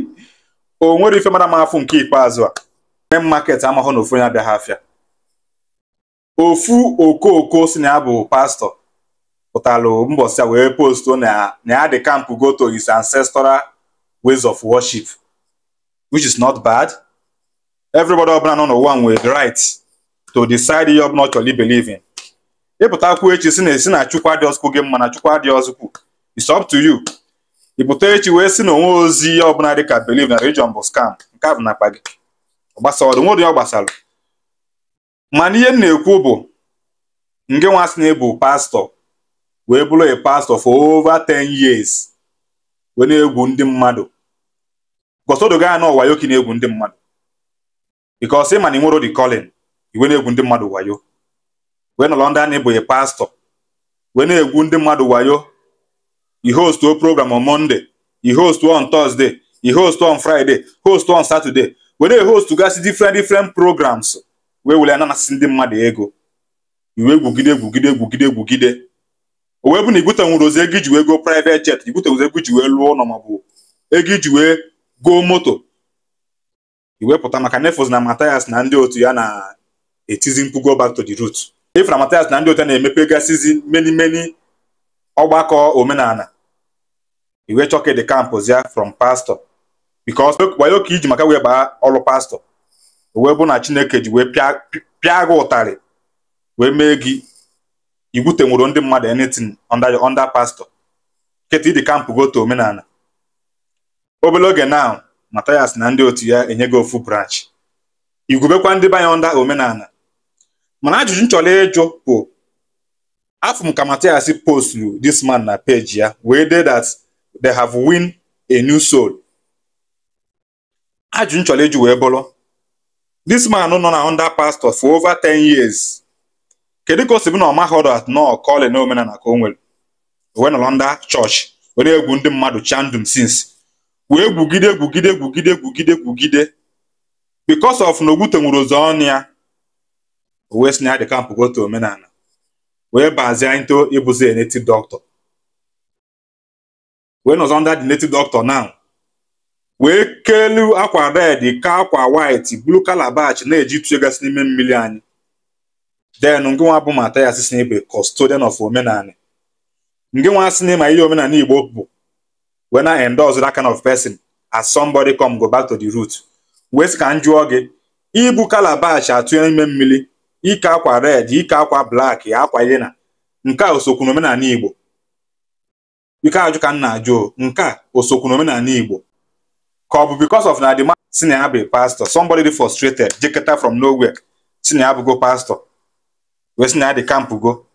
o nwere ife mara m afụ nke ikpeazụ a e market amahụ na ofu onye hafịa. afịa ofu okooko si na ya bụ pastọ pụtara mbọsị a wee postu na ya dị kampụ goto is ancestral ways of worship which is not bad everybody ọbụla nọ n'ụwa nwere the right to decide ihe ọbụla ọ chọrọ ibelieve in ịpụtakwu echi si na esi na chukwu adịọzụkwu gị mma na chukwu adịọzụkwu it's up to you ị echi wee si n'onwe onwe ozi ọbụla dị ka believe na religion bụ scam nke a bụ n'akpa gị ọgbasa ọdụ nwere ya ọ gbasara mana ihe m na-ekwu bụ nge nwa sị na ịbụ pastọ wee bụrụ a pastọ for ova ten years wee na-egwu ndị mmadụ gọsọdo gaa na ọwayo ka na-egwu ndị mmadụ because ịma na ịnwero di calling iwe na-egwu ndị mmadụ wayo wee nọrọ ndị a na ịbụ a pastọ wee na-egwu ndị mmadụ wayo you host o program on monday you host on thursday you host on friday host on saturday were host gasị different different programs wee were ananasị ndị mmadụ ego iwe gwugide egwugide egwugide egwugide o wee bụ na igbutenwuru ozi ego iji wee go private jet igbutenwuru ego iji wee lụọ ụlọ maọbụ ego iji wee goo moto iwepụta maka nefos na Matthias na ndị otu ya na-etizi mkpu back to the root if na Matthias na ndị otu ya na-emepe gasịzi meni meni ọgbakọ omenala iwe chọkị dị kampụzia from pastọ bikos wayo ka iji maka wee baa ọrụ pastọ wee bụ na chineke ji wee pịa gị ụtarị wee mee gị igwute nwụrụ ndị mmadụ anything under under pastọ nketa ịdị kampụ goto omenala obere oge na Mathias na ndị otu ya enyego ofu branch igwubekwa ndị banye onda omenala mana ajụjụ m chọrọ ịjụ bụ afọ m ka Mathias posturu this man na peji ya wee dee dat. they have win a new soul ajụ nchọrọ eji wee bụrụ this man nọ na under pastor for over ten years kedu ka o si bụ na ọmahọrọ at nọ kọlị na omenala ka o nwere wee nọrọ ndị chọọchị were egwu ndị mmadụ chandum since wee gwugide gwugide gwugide gwugide gwugide because of na Ogwute nwere ụzọ ọnụ ya wee si na ya dị omenala wee bazie into ịbụzi native doctor wee nọzọ under dị native doctor now wee kelu akwa red ka akwa white blue calabash na-eji egasị n'ime mmiri anyị then ngịnwa bụ ya si n'ebe custodian of omenala ngịnwa si n'ịma ihe omenala Igbo bụ wee na endorse that kind of person as somebody come go back to the root wee sị ka m jụọ gị ibu calabash atụ n'ime mmiri ike akwa red ike akwa blak akwa ihe na nke a osokwu na Igbo biko ajụ ka m na-ajụ nke a osokwu na omenala Igbo ka ọ bụ because of na the man si na ya bụ pastor somebody dị frustrated jeketa from nowhere si na ya bụgo pastor wee si na ya dị kampụ go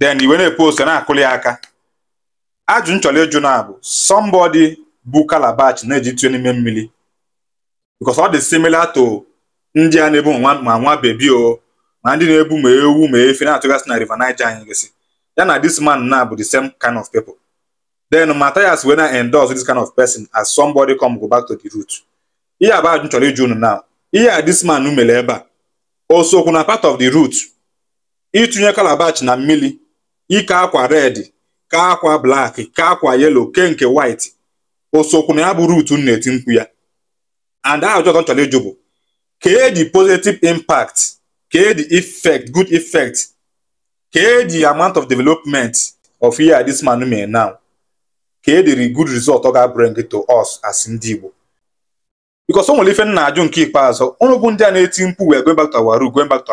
then iwe na-epost na-akụli ya aka ajụ nchọrọ ịjụ na abụ somebody bụ calabash na-eji tụọ n'ime mmiri because ọ dị simila to ndị a na-ebu ma nwa bebi o ma ndị na-ebu ma ewu ma efe na-atụgasị na River Niger anyị gosị ya na this man na bụ the same kind of people then Matthias wee na endorse this kind of person as somebody come go back to the root ihe abụọ ajụ chọrọ ịjụ now ihe a this man mere ebe a o sokwu na part of the root itunye calabash na mmiri ike akwa red ka akwa black ka akwa yellow ke nke white o na ya bụ root na-eti mkpu ya and ajụ ọzọ chọrọ ịjụ bụ kee the positive impact kee the effect good effect kee the amount of development of ihe a this man mele now ka e diri good result ọ ga bring to us as ndị Igbo because o nwere ife nna ajụ nke ikpeazụ ụnụ bụ ndị a na-eti mkpu wee going back to our root going back to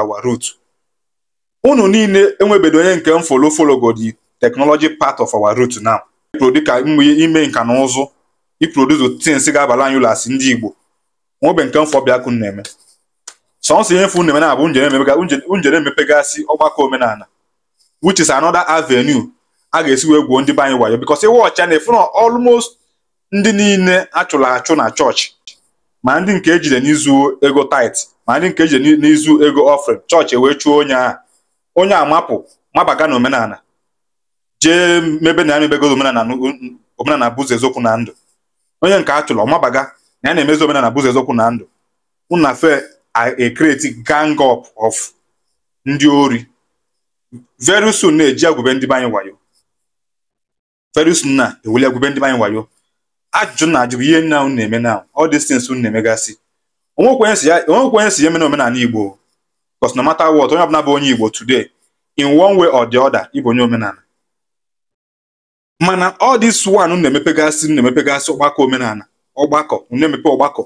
ụnụ niile enwebedo onye nke m folo folo go the technology part of our root now dịka ime nka na ụzụ iproduce things ga-abala anyị ụlọ asị ndị Igbo nwobe nke mfọ bịakụ na-eme sọnsọ ihe mfu na-eme na-abụ njere emepegasị ọgbakọ omenala which is another a ga-esi wee gwuo ndị be anyị wayo because ịwa ọcha na efu na almost ndị niile achụrụ achụ na chọọchị ma ndị nke ejide n'izu ego tait ma ndị nke ejide n'izu ego ofre chọọchị wee chụọ onye a onye a mapụ mabaga na omenala jee mebe na ya mebegoro omenala bụzụ eziokwu na ndụ onye nke a chụrụ mabaga na ya na-emezi omenala bụzụ ezokwu na ndụ unafe fe a create gang up of ndị ori very soon na-eji agwụbe ndị be anyị wayo Ferus nna ewuli agwụbe ndị anyị wayo ajụjụ na ajụ bụ ihe nna unu na-eme na all these things unu na-emegasị onwekwenye si ya mena omenala Igbo because na matter wọt onye ọbụla bụ onye Igbo today in one way or the other ịbụ onye omenala mana ọ dị one unu na-emepegasị unu na-emepegasị ọgbakọ omenala ọgbakọ unu na-emepe ọgbakọ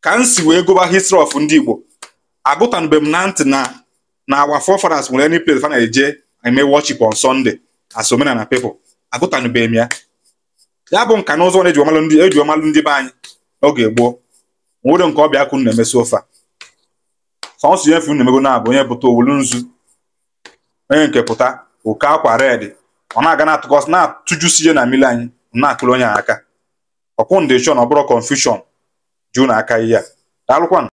ka m si wee gụba history ọf ndị Igbo agụtanube m na ntị na na our forefathers nwere any place fa eje eme worship on Sunday as omenala people agụtanụbeghị m ya ya bụ nka na ụzọ na eji ọmalụ ndị be anyị n'oge gboo nwere nke ọbịa akụ na-emesi ofe a sọnsụ ihe fun emego na-abụ onye pụta owulu nzu onye nke pụta oke akwa red ọ na-aga na-atụkọsị na-atụjusi ihe na mmiri anyị na-akụrụ onye aka chọọ na ọ bụrụ konfushọn ju na aka ihe a daalụkwanụ